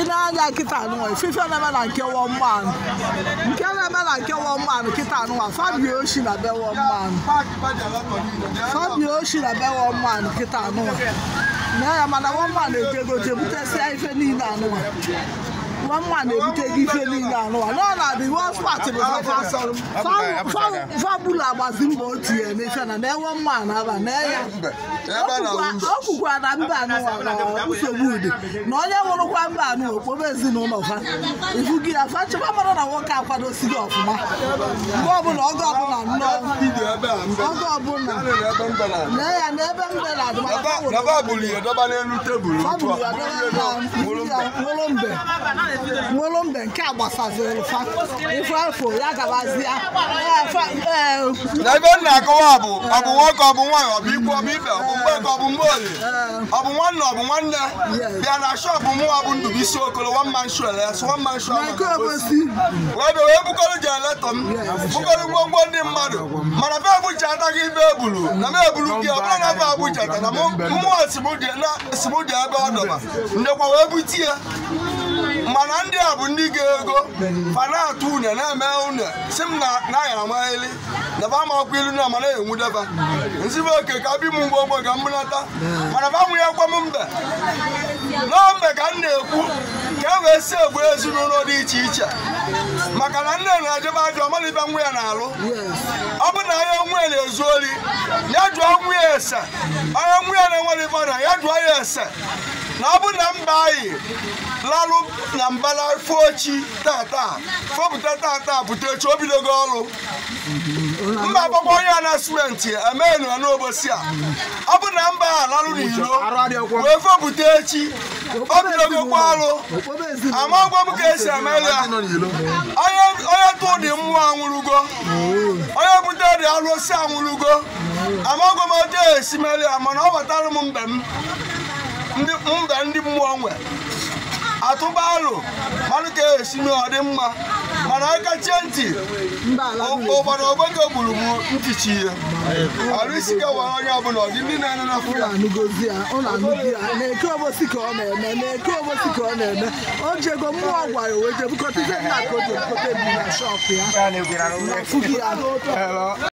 ịna-anya nkịta anụnwa ifefe na-eme na nke wọmanụ nke na-eme na nke wọmanụ nkịta anụnwa fabio oshi na be wọmanụ fabio oshi na be wọmanụ nkịta anụnwa na ya mana wọmanụ ejego jebutesịa ife niile anụnwa nwa mma na-ebute gị ife niile anụwa n'ọnọdụ iwe ọspatị bụ fabula gbazi mbọ o tinye n'efe na na-enwe mma na-aba na ya ọ kwukwa na mba anụwa na nsogbu ude na onye nwụrụkwa mba anụwa okpobe ezinụlọ ha ifu gị ya fa nchekwa mara na nwoke akwadosighị ọfụma mgbe ọbụla oge ọbụla daba buli ya daba n'elu tebụl nwere mbe nke a gbasaziri ife afọ ya gabazia na ebe nna akọwa bụ ọ bụ nwoke ọ bụ nwaanyị ọ bụ ikwu ọ bụ ibe ọ bụ mgbe ọ bụ mgbe ọ bụ nwanne ọ bụ nwanne bịa na shọpụ mụwa bụ Ndubuisi Okolo one man show yes one man show wee bukọrọ jeletọ m bukọrọ ngwongwo ndị mmadụ mara afe Abuja ataghị ibe ebulu na m ebulu gị ọbụla na afe Abuja ta na mmụọ simudi ebe ọ dọba ndekwa wee bute ya mana ndị a bụ ndị ga-ego fanatụ une na-eme une si m na aya amaghịli na ba amakwa ilu na amara enwudeba nzibe oke ka bi m mgbe ogbe ka m mana ba mụ ya gwa m mbe nọọ ka m na-ekwu ka e wee si egbu ezinụlọ dị iche iche maka na nne na-ejebe ajọ ibe nwa ya na-alụ ọ bụ na ya anyị na-ezu ori ya dụọ nwa ya ese onye nwa ya na-enwere ibe ọrịa ya dụọ ya ese na ọ bụ na mba anyị larụ na mbala fochi tata fọpụta tata butechi o bidogo ọrụ mba agbakwa onye anasmenti emee nọ n'obosi a ọ bụ na mba a larụ n'iro wee fọpụta echi esi ya onye tụ dị mmụọ anwụrụgo onye bute dị alụsị anwụrụgo amagwa m otu esi mere ya mana ọ batara m mbe m ndị mmụọ nwe atụba arụ mmanụ ka esi mee mma mana aka chie ntị ụgbara ogbeke gburu m ntichi ihe arụ isi onye ọbụla ọdị ndị na-ene na fụla na obosi ka ọ na-eme na-eke obosi ka ọ na-eme o jego mmụọ gwara wee jebukọta ihe ka o jebukọta na shọpụ ya na ya